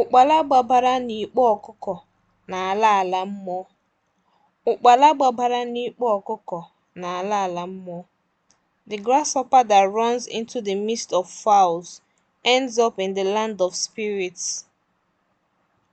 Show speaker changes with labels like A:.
A: Ụkpala gbabara n'ikpo ọkụkọ n'ala ala mmụọ ala mmụọ The grasshopper that runs into the midst of fowls ends up in the land of spirits.